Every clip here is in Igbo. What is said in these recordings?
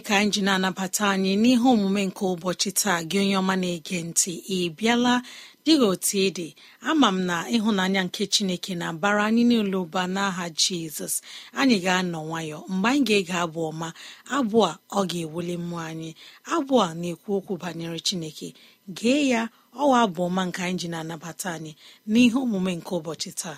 chineke ka anyị ji na-anabata anyị n'ihe omume nke ụbọchị taa gị onye ọma na-ege ntị ị bịala dịghị otu ịdị ama m na ịhụnanya nke chineke na bara anyị n'ụlọ ụba n'aha jizọs anyị ga-anọ nwayọ mgbe anyị ga-ege abụ ọma abụ a ọ ga-ewuli mmụọ anyị abụ a na-ekwu okwu banyere chineke gee ya ọwa abụ ọma nke anyị ji na-anabata anyị n'ihe omume nke ụbọchị taa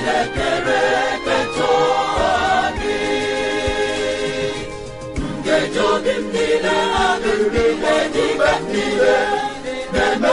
chinekere ketụadị nkeji obi m niile adị n'ihe na-eme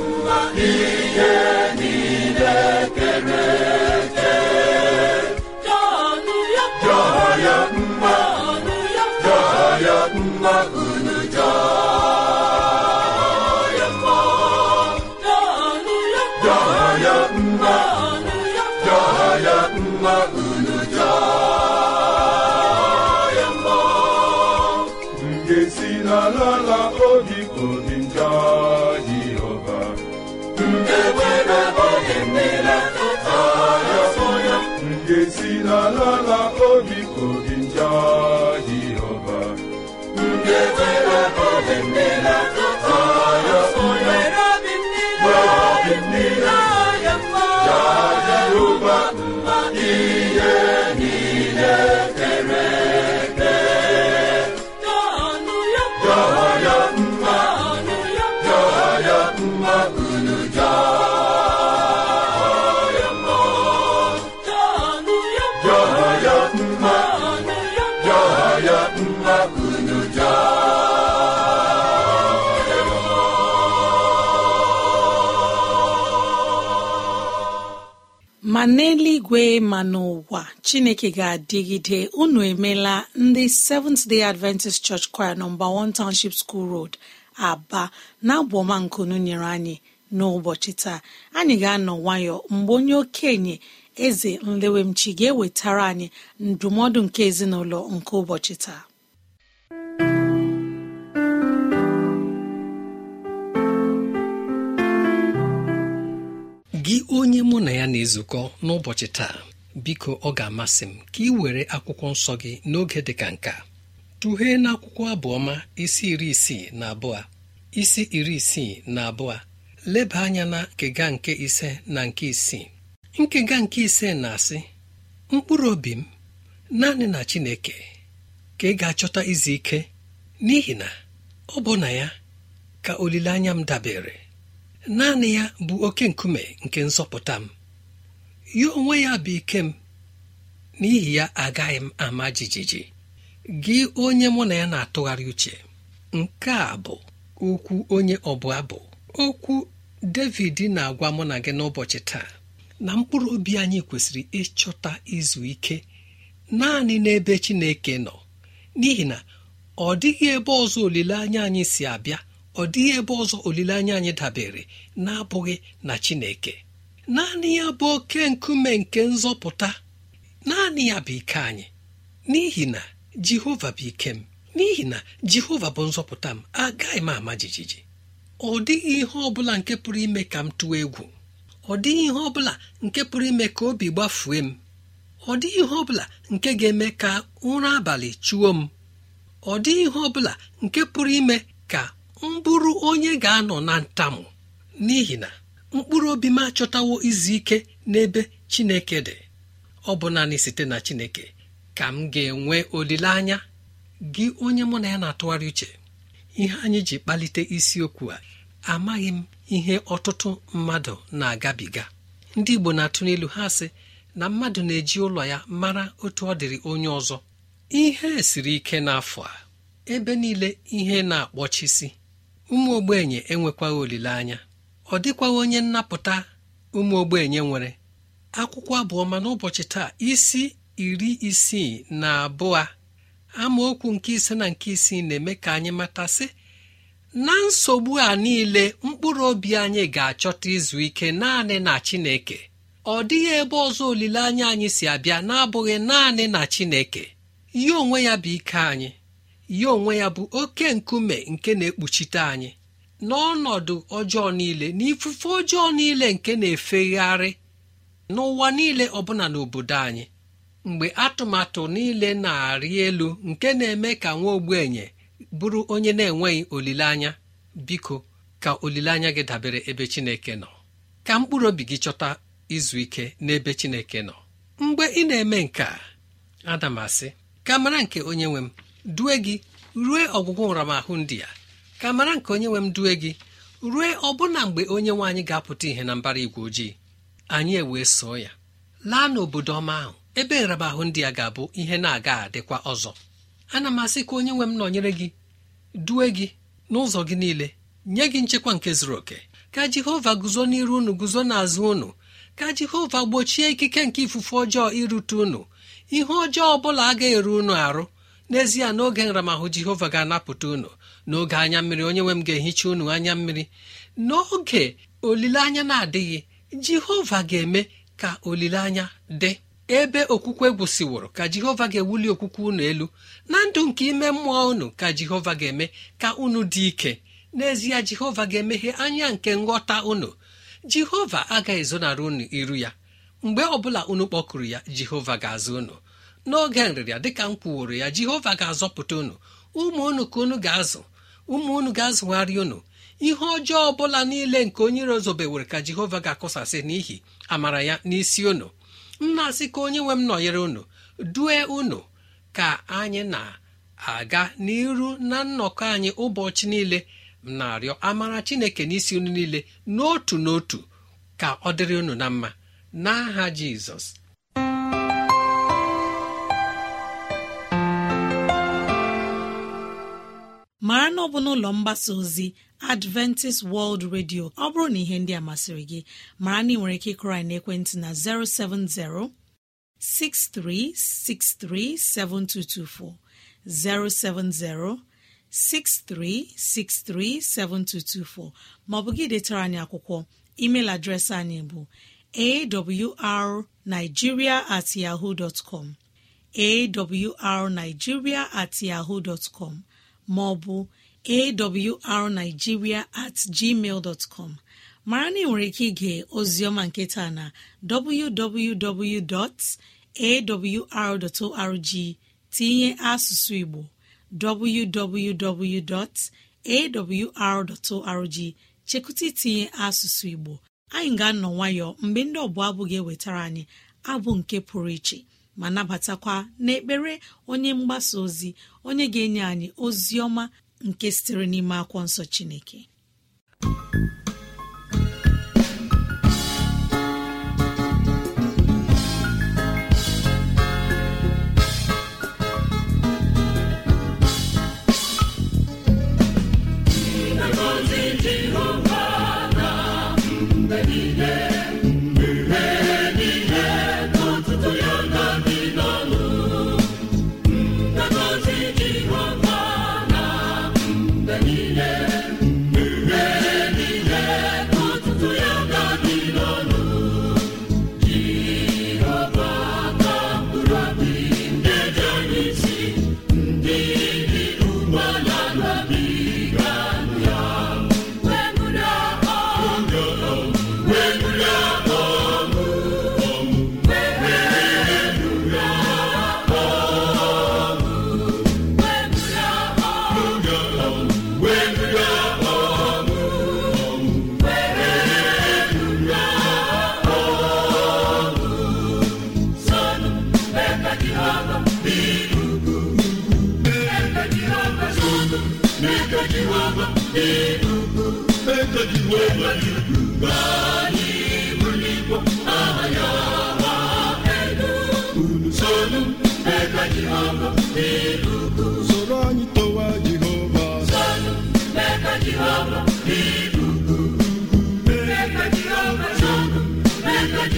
ihe ma n'eluigwe ma n'ụwa chineke ga-adịgide unu emela ndị seventh day adventist church choir nọmba 1 township school road aba na-abụ ọma nkunu nyere anyị n'ụbọchị taa anyị ga-anọ nwayọ mgbe onye okenye eze nlewemchi ga-ewetara anyị ndụmọdụ nke ezinụlọ nke ụbọchị taa gị onye mụ na ya na-ezukọ n'ụbọchị taa biko ọ ga-amasị m ka ị were akwụkwọ nsọ gị n'oge dị ka nka tụghee n'akwụkwọ abụọma isi iri isii na abụọ isi iri isii na abụọ leba anya na nkega nke ise na nke isii nkega nke ise na-asị mkpụrụ obi m naanị na Chineke ka ị ga-achọta izu ike n'ihi na ọ bụ na ya ka olileanya m dabere naanị ya bụ oke nkume nke nzọpụta m ya onwe ya bụ ike m n'ihi ya agaghị m ama jijiji gị onye mụ na ya na-atụgharị uche nke a bụ okwu onye ọbụla bụ okwu david na-agwa mụ na gị n'ụbọchị taa na mkpụrụ obi anyị kwesịrị ịchọta izu ike naanị n'ebe chineke nọ n'ihi na ọ dịghị ebe ọzọ olileanya anyị si abịa ọ dịghị ebe ọzọ olileanya anyị dabere na-abụghị na Chineke naanị ya bụ oke nkume nke nzọpụta naanị ya bụ ike anyị n'ihi na Jehova bụ ike m n'ihi na Jehova bụ nzọpụta m agaghị m ama jijiji ọ dịghị ihe ọ bụla nke pụrụ ime ka m tụọ egwu ọ dịghị ihe ọ bụla nke pụrụ ime ka obi gbafue m ọ dịghị ihe ọ bụla nke ga-eme ka ụra abalị chụọ m ọ dịghị ihe ọ bụla nke pụrụ ime ka mbụrụ onye ga-anọ na ntamu n'ihi na mkpụrụ obi m achọtawo izu ike n'ebe chineke dị ọ bụ naanị site na chineke ka m ga-enwe olileanya gị onye mụ na ya na-atụgharị uche ihe anyị ji kpalite isiokwu a amaghị m ihe ọtụtụ mmadụ na-agabiga ndị igbo na-atụ n'elu ha sị na mmadụ na-eji ụlọ ya mara otu ọ dịrị onye ọzọ ihe siri ike n'afọ a ebe niile ihe na-akpọchisi ụmụ ogbenye enwekwaghị olileanya ọ dịkwaghị onye nnapụta ụmụ ogbenye nwere akwụkwọ abụọma n'ụbọchị taa isi iri isii na abụọ amaokwu nke ise na nke isii na-eme ka anyị matasị na nsogbu a niile mkpụrụ obi anyị ga-achọta izu ike naanị na Chineke ọ dịghị ebe ọzọ olileanya anyị si abịa na-abụghị naanị na Chineke ihe onwe ya bụ ike anyị ya onwe ya bụ oke nkume nke na-ekpuchite anyị n'ọnọdụ ọjọọ niile na ifufe ọjọọ niile nke na-efegharị n'ụwa niile ọbụla n'obodo anyị mgbe atụmatụ niile na-arị elu nke na-eme ka nwa ogbenye bụrụ onye na-enweghị olileanya biko ka olileanya gị dabere ebe Chineke nọ ka mkpụrụ obi gị chọta izu ike n'ebe Chineke nọ mgbe ị na-eme nke adamasị ka mara nke onye nwe m due gị rue ọgwụgwụ nramahụ ndị ya ka mara nke onye nwe m due gị rue ọbụna mgbe onye nwe anyị ga-apụta ihe na mbara igwe ojii anyị ewee soo ya laa n'obodo ọma ahụ ebe nramahụ ndị ya ga-abụ ihe na-aga adịkwa ọzọ ana m asị ka onye nwe m nọnyere gị due gị n'ụzọ gị niile nye gị nchekwa nke zuru oke ka jehova guzo n'iru unu guzo n'azụ unu ka jehova gbochie ikike nke ifufe ọjọọ irute unu ihe ọjọọ ọ bụla agaghị eru unu arụ n'ezie n'oge nramahụ jehova ga-anapụta unu n'oge anya mmiri onye nwe m ga-ehicha unu anya mmiri n'oge olileanya na-adịghị jehova ga-eme ka olileanya dị ebe okwukwe gwụsịworo ka jehova ga-ewuli okwukwe unu elu na ndụ nke ime mmụọ unu ka jehova ga-eme ka unu dị ike n'ezie jehova ga-emeghe anya nke nghọta unu jehova agaghị ezonara unu iru ya mgbe ọbụla unu kpọkụrụ ya jehova ga-azụ unu n'oge nrịrịa dịka m kwuworo ya jehova ga-azọpụta unu ụmụ unu ka unu ga-azụ ụmụ unu ga-azụgharị unu ihe ọjọọ ọbụla niile nke onye iro zobewere ka jehova ga akụsasị n'ihi amara ya n'isi unu na asị ka onye nwe m nọnyere unu due unu ka anyị na-aga n'iru na nnọkọ anyị ụbọchị niile na-arịọ amara chineke n'isi unu niile n'otu n'otu ka ọ dịrị unu na mma n'aha jizọs mara na ọ bụ n'ụlọ mgbasa ozi adventist world radio ọ bụrụ na ihe ndị a masịrị gị mara na ị nwere ike ịkrị na ekwentị na 070 7224 7224 maọbụ gị detara anyị akwụkwọ email adreesị anyị bụ awrnigeria at yahoo dot com awrnigeria at yahoo dot Ma ọ maọbụ arigiria at gmail mara na ị nwere ike ige ozioma nketa na www.awr.org tinye asụsụ igbo www.awr.org chekụta itinye asụsụ igbo anyị ga-anọ nwayọọ mgbe ndị ọbụla abụ ga-ewetara anyị abụ nke pụrụ iche ma nabatakwa n'ekpere onye mgbasa ozi onye ga-enye anyị ozi ọma nke sitere n'ime akwọ nsọ chineke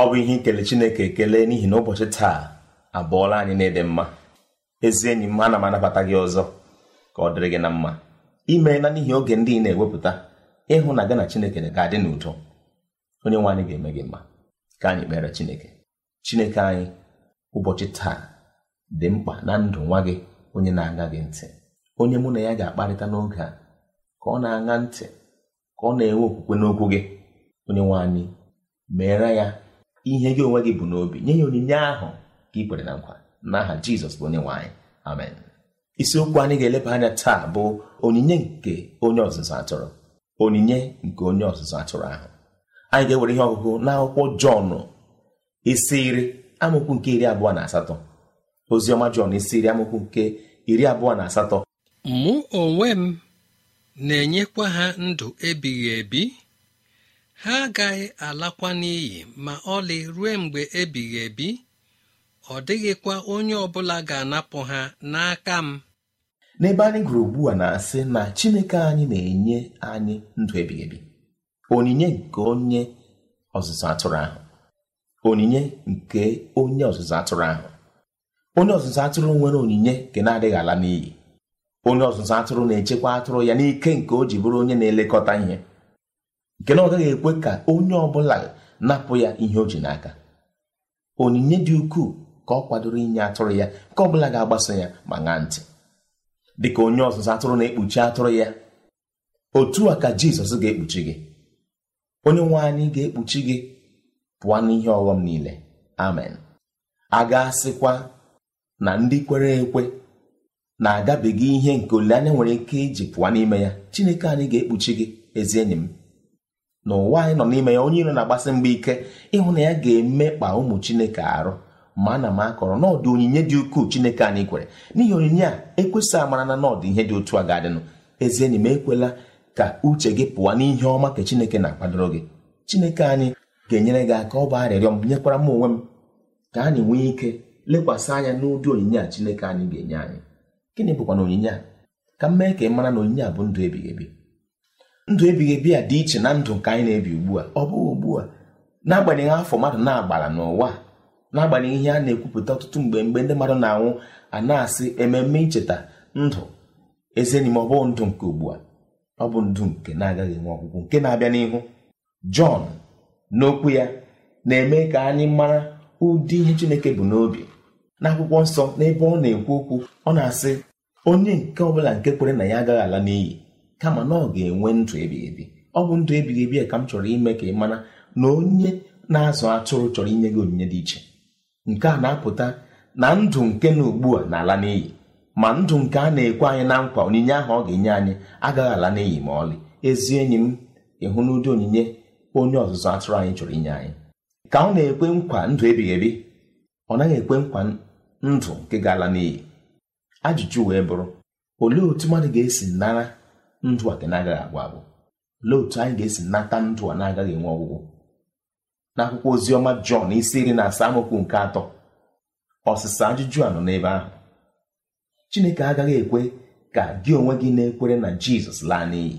ọ bụ ihe ikele chineke ekele n'ihi na ụbọchị taa abụọla anyị na ịdị mma ezi enyi m ana m anabata gị ọzọ ka ọ dịrị gị na mma imeela n'ihi oge ndị ị na-ewepụta ịhụ na gị na chineke ga-adị n'udo onye nwe anyị ga-eme gị mma ka anyị kpere chineke chineke anyị ụbọchị taa dị mkpa na ndụ nwa gị onye na-aga gị ntị onye mụ na ya ga-akparịta n'oge a ka ọ na-aṅa ntị ka ọ na-enwe okwukwe n'okwu gị onye nwe anyị meere ya ihe gị onwe gị bụ n'obi nye ya onyinye ahụ ka ị kwere na nkwa n'aha Jizọs bụ onye nwe anyị amen isiokwu anyị ga-eleba anya taa bụ onyinye nke onye ọzụzụ atụrụ onyinye nke onye ọzụzụ atụrụ ahụ anyị ga-ewere ihe ọgụgụ n'akwụkwọ Jọn isi iri amaokwu nke iri abụọ na asatọ oziọma jọn isi iri amụkwu nke iri abụọ na asatọ mụ onwe m na-enyekwa ha ndụ ebighị ebi ha agaghị alakwa n'iyi ma ọlị ruo mgbe ebighị ebi ọ dịghịkwa onye ọbụla ga-anapụ ha n'aka m n'ebe anyị gụrụ ugbu a na-asị na chineke anyị na-enye anyị ndụ ebighị ebi onyinye nke onye ọzụzụ atụrụ ahụ onyinye nke onye ọzụzụ atụrụ ahụ onye ọzụzụ atụrụ nwere onyinye nke na-adịghị ala n'iyi onye ọzụzụ atụrụ na-echekwa atụrụ ya n'ike nke o ji bụrụ onye na-elekọta ihe nke na ọ gaghị ekwe ka onye ọ bụla napụ ya ihe o ji n'aka onyinye dị ukwuu ka ọ kwadoro inye atụrụ ya nke ọ bụla ga-agbaso ya ma ṅaa ntị ka onye ọzụzụ atụrụ na-ekpuchi atụrụ ya otu a ka Jizọs ga-ekpuchi gị onye nwe anyị ga-ekpuchi gị pụọ n'ihe ọghọm niile amen a ga-asịkwa na ndị kwere ekwe na-agabiga ihe nke olileanya nwere ike iji pụọ n'ime ya Chineke anyị ga-ekpuchi gị ezi enyi m na ụwa anyị nọ n'ime ya onye iro na-agbasi mgba ike ịhụ na ya ga-emekpa ụmụ Chineke arụ ma ana m akọrọ n'ọdụ onyinye dị ukwuu Chineke anyị kwere n'ihi onyinye a ekwesị amara na n'ọdụ ihe dị otu a ga-adịnụ ezi enyi m ekwela ka uche gị pụọ n'ihe ọma ka Chineke na-akwadoro gị Chineke anyị ga-enyere gị aka ọ bụ arịrịọ m nyekwara m onwe m ka anyị nwee ike lekwasị anya n'ụdị onyinye a Chineke anyị ga-enye anyị gịnị bụkwa na onyinye a ka m mee ka ị mara na onyinye a bụ ndụ ebighị ebi ndụ ebighị ebi a dị iche na ndụ nke anyị na-ebi ugbu a ọ bụghị ugbu a n'agbanyeghị afọ mmadụ na-agbara n'ụwa na-agbanyeghị ihe a na-ekwupụta ọtụtụ mgbe mgbe ndị mmadụ na-anwụ a na-asị ememe icheta ndụ ezenime ọ bụghị ndụ nke ugbu a ọ bụ ndụ nke na-agaghị enwe ọgwụgwụ nke na-abịa n'ihu Jọn n'okwu ya na-eme ka anyị mara ụdị ihe Chineke bụ n'obi n'akwụkwọ nsọ n'ebe ọ na-ekwu okwu ọ na-asị onye nke ọbụla nke kwere na ya agaghị ala n'iyi kama na ọ ga-enwe ndụ ebighị ebi ọ bụ ndụ ebighị ebi ka m chọrọ ime ka ị mana na onye na-azụ atụrụ chọrọ inye gị onyinye dị iche nke a na-apụta na ndụ nke na ugbu a na-ala n'iyi ma ndụ nke a na-ekwe anyị na nkwa onyinye ahụ ọ ga-enye anyị agaghị ala n'iyi ma ọlị ezi enyi m ịhụ n'ụdị onyinye onye ọzụzụ atụrụ anyị chọrọ inye anyị ka ọ na-ekwe nkwa ndụ ebighị ebi ọ naghị ekwe nkwa ndụ nke ga-ala n'iyi ajụjụ wee bụrụ olee otu mmadụ ga-esi nara ndụ a ka na-agaghị agwụ agwụ olee otu anyị ga-esi nata ndụ a na-agaghị enwe ọgwụgwụ n'akwụkwọ akwụkwọ oziọma Jọn isi iri na asaa amaokwu nke atọ ọsịsa ajụjụ a nọ n'ebe ahụ Chineke agaghị ekwe ka gị onwe gị na-ekwere na Jizọs laa n'iyi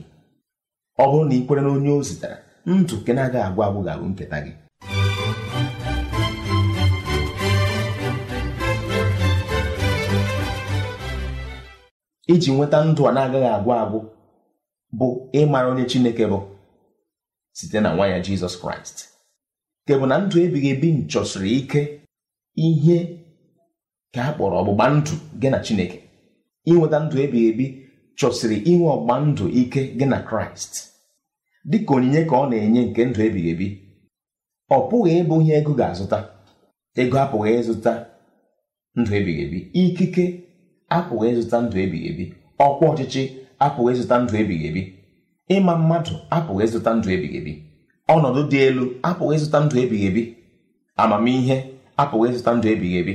ọ bụrụ na ị kwere na onye o zitere ndụ nke na-agaghị agwụ agwụ ga-abụ nketa gị iji nweta ndụ a na-agaghị agwụ agwụ bụ ịmara onye Chineke bụ site na nwa ya Jizọs Kraịst nke bụ na ndụ ebighị ebi nchọsiri ike ihe ka a kpọrọ ọgbụgba ndụ gị na Chineke inweta ndụ ebighị ebi chọsiri inwe ọgbụgba ndụ ike gị na Kraịst dị ka onyinye ka ọ na-enye nke ndụ ebighị ebi ọ pụghị ịbụ ihe ego ga-azụta ego apụghị ịzụta ndụ ebighị ebi ikike apụghị ịzụta ndụ ebighị ebi ọkwa ọchịchị apụghị ịzụta ndụ ebighị ebi ịma mmadụ apụghị ịzụta ndụ ebighị ebi ọnọdụ dị elu apụghị ịzụta ndụ ebighị ebi amamihe apụghị ịzụta ndụ ebighị ebi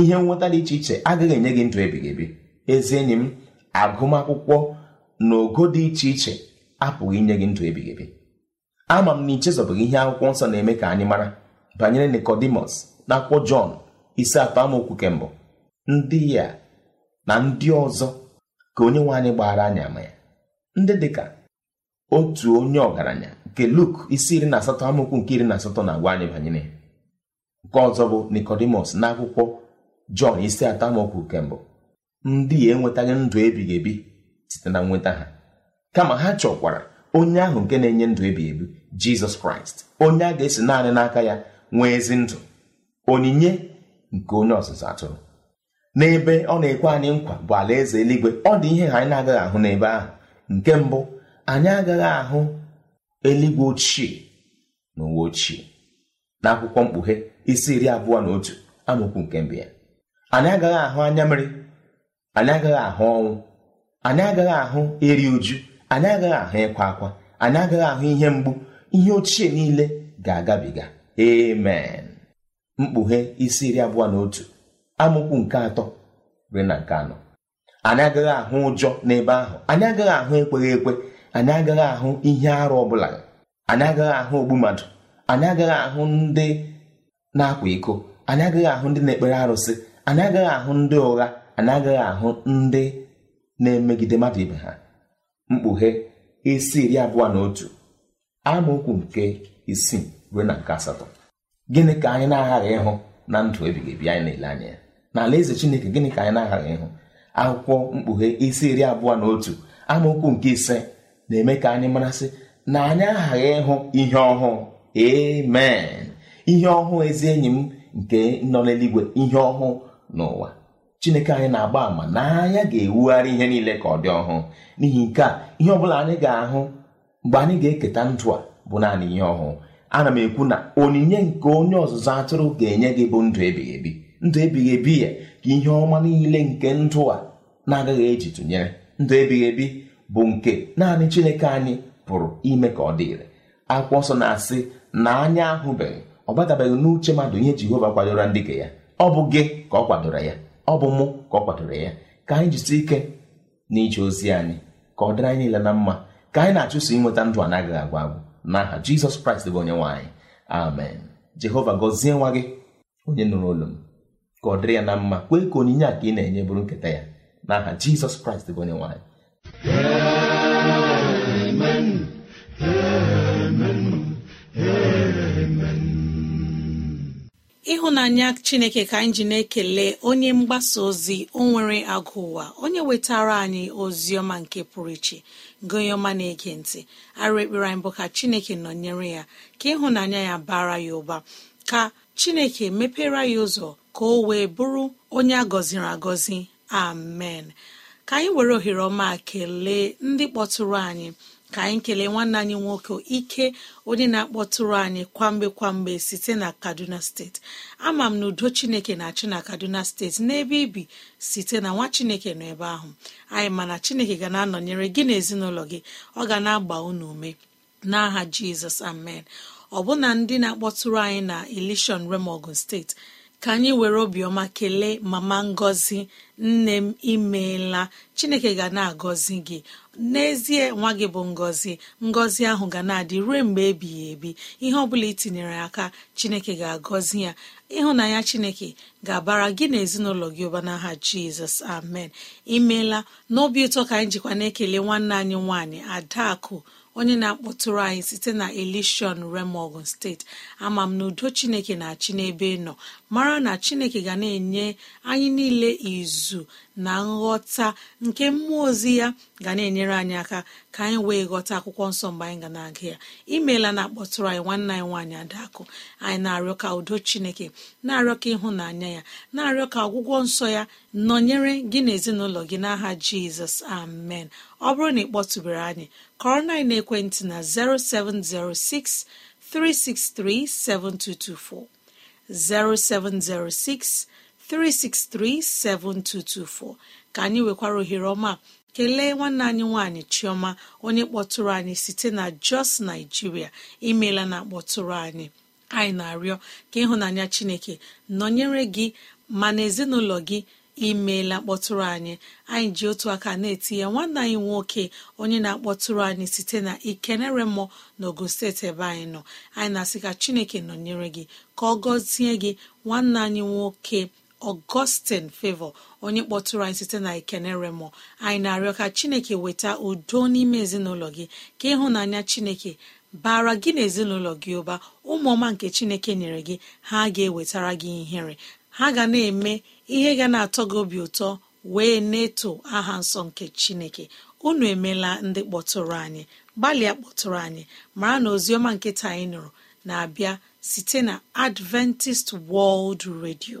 ihe nweta dị iche iche agaghị enye gị ndụ ebighị ebi ezi enyi m agụmakwụkwọ na ogo dị iche iche apụghị inye gị ndụ ebighị ebi ama m na ichezọbụghị ihe akwụkwọ nsọ na-eme ka anyị mara banyere Nikodimus na akwụkwọ Jọn isi atọ amaokwu ndị ya na ndị ọzọ ka onye nwe anyị gbara anyị ama ya ndị dịka otu onye ọgaranya nke Luk isi iri na asatọ amụkwu nke iri na asatọ na-agwa anyị banyere ya nke ọzọ bụ Nikodimus akwụkwọ Jọn isi atọ amaokwu nke mbụ ndị ya enwetaghị ndụ ebighị ebi site na nweta ha kama ha chọkwara onye ahụ nke na-enye ndụ ebighị ebi Jizọs Kraịst onye a ga-esi naanị n'aka ya nwee ezi ndụ onyinye nke onye ọzụzụ atụrụ n'ebe ọ na-ekwe anyị nkwa bụ alaeze eluigwe ọ dị ihe anyị na-agaghị ahụ n'ebe ahụ nke mbụ anyị agaghị ahụ eluigwe ochie na uwe ochie n'akwụkwọ mkpughe isi iri abụọ na otu amaokwu nke mbụ ya anyị agaghị ahụ anya mmiri anyị agaghị ahụ ọnwụ anyị agaghị ahụ eri uju anyị agaghị ahụ ịkwa akwa anyị agaghị ahụ ihe mgbu ihe ochie niile ga-agabiga amen mkpughe isi iri abụọ na otu amụkwu nke atọ ruo na nke anọ anyị agaghị ahụ ụjọ n'ebe ahụ anyị agaghị ahụ ekweghị ekwe anyị agaghị ahụ ihe arụ ọ bụla anyị agaghị ahụ ogbu mmadụ anyị agaghị ahụ ndị na-akwa iko anyị agaghị ahụ ndị na-ekpere arụsị anyị agaghị ahụ ndị ụgha anyị agaghị ahụ ndị na-emegide mmadụ ibe ha mkpughe isi iri abụọ na otu amaokwu nke isii ruo na nke asatọ gịnị ka anyị na-aghaghị ịhụ na ndụ ebighị ebi anyị na-ele anya ya na alaeze chineke gịnị ka anyị na-aghara ịhụ akwụkwọ mkpughe isi iri abụọ na otu amaokwu nke ise na-eme ka anyị marasị na anyị aghaghị ịhụ ihe ọhụụ amen ihe ọhụụ ezi enyi m nke nọ n'eluigwe ihe ọhụụ n'ụwa chineke anyị na-agba àmà na anya ga-ewugharị ihe niile ka ọ dị ọhụụ n'ihi nke a ihe ọ bụla anyị ga-ahụ mgbe anyị ga-eketa ndụ a bụ naanị ihe ọhụụ ana m ekwu na onyinye nke onye ọzụzụ atụrụ ga-enye gị bụ ndụ ebighị ebi ndụ ebighị ebi ya ka ihe ọma niile nke ndụ a na-agaghị eji tụnyere ndụ ebighị ebi bụ nke naanị chineke anyị pụrụ ime ka ọ dịrị akwụkwọ ọsọ na-asị na anya ahụbeghị ọ batabeghị n'uche mmadụ ihe jehova kwadoro ndị ka ya ọ bụ gị ka ọ kwadoro ya ọ bụ mụ ka ọ kwadoro ya ka anyị jisie ike n'ije ozi anyị ka ọ dịrị anyị niile na mma ka anyị na-achụso inweta ndụ anaghị agwa agwụ n'aha jizọs kraịst bụ onye nwaanyị amen jehova gọzie nwa gị onye nụrụ olu m ka ọ dịrị ya na mma kwee ka onyinye a ka ị na-enye bụrụ nketa ya n'aha jizọs kraịst bụ onye nwanyị ịhụnanya chineke ka anyị ji na-ekele onye mgbasa ozi o nwere agụ ụwa onye wetara anyị ozi ọma nke pụrụ iche gụnye ọma na-ege ntị arụ ekpere anyị bụ ka chineke nọnyere ya ka ịhụnanya ya bara ya ụba ka chineke mepere ya ụzọ ka o wee bụrụ onye a gọziri agọzi amen ka anyị were ohere ọma kelee ndị kpọtụrụ anyị ka anyị kelee nwanne anyị nwoke ike onye na-akpọtụrụ anyị kwamgbe kwamgbe site na kaduna steeti ama m na udo chineke na-achị na kaduna steeti n'ebe ibi site na nwa chineke nọ ebe ahụ anyị mana chineke ga na-anọnyere gị na gị ọ ga na-agba unu ume n'aha jizọs amen ọ bụna ndị na-akpọtụrụ anyị na ilishọn remogun steeti ka anyị were obiọma kelee mama ngọzi nne m imeela chineke ga na-agọzi gị n'ezie nwa gị bụ ngọzi ngọzi ahụ ga na-adị ruo mgbe ebighị ebi ihe ọ bụla itinyere aka chineke ga-agọzi ya ịhụnanya chineke ga-abara gị na ezinụlọ gị ụba n'aha jizọs amen imeela n'obi ụtọ ka anyị jikwa na-ekele nwanne anyị nwaanyị adakụ onye na-akpọtụrụ anyị site na elishon remogun steeti ama m na udo chineke na-achị n'ebe nọ mara na chineke ga na-enye anyị niile izu na nghọta nke mmụọ ozi ya ga na-enyere anyị aka ka anyị wee ghọta akwụkwọ nsọ mgbe anyị ga na-aga ya imeela na akpọtụrụ anyị nwanne anyị nwaanyị adakụ anyị na-arịọ ka udo chineke na-arịọ ka ịhụnanya ya na-arịọ ka ọgwụgwọ nsọ ya nọnyere gị na ezinụlọ gị n'aha jizọs amen ọ bụrụ na ị kpọtụbere anyị kọrọ anyị na ekwentị na 0706 363 7224 0706 3637224 ka anyị nwekwara ohere ọma kelee nwanne anyị nwanyị chioma onye kpọtụrụ anyị site na jos naijiria imeela na kpọtụrụ anyị anyị na-arịọ ka ịhụnanya chineke nọnyere gị ma na ezinụlọ gị imeela kpọtụrụ anyị anyị ji otu aka na-eti ya nwanne anyị nwoke onye na-akpọtụrụ anyị site na ikenere mmụọ na ogun steeti ebe anyị nọ anyị na-asị ka chineke nọnyere gị ka ọ gọzie gị nwanne anyị nwoke ọgọstin fevo onye kpọtụrụ anyị site na ikeneremo anyị na-arịọ ka chineke weta udo n'ime ezinụlọ gị ka ịhụnanya chineke bara gị na ezinụlọ gị ụba ụmụọma nke chineke nyere gị ha ga-ewetara gị ihere ha ga na-eme ihe ga na-atọ gị obi ụtọ wee na-eto aha nsọ nke chineke unu emela ndị kpọtụrụ anyị gbalịa kpọtụrụ anyị mara na oziọma nkịta anyị nụrụ na-abịa site na adventist world radio.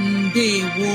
ndewo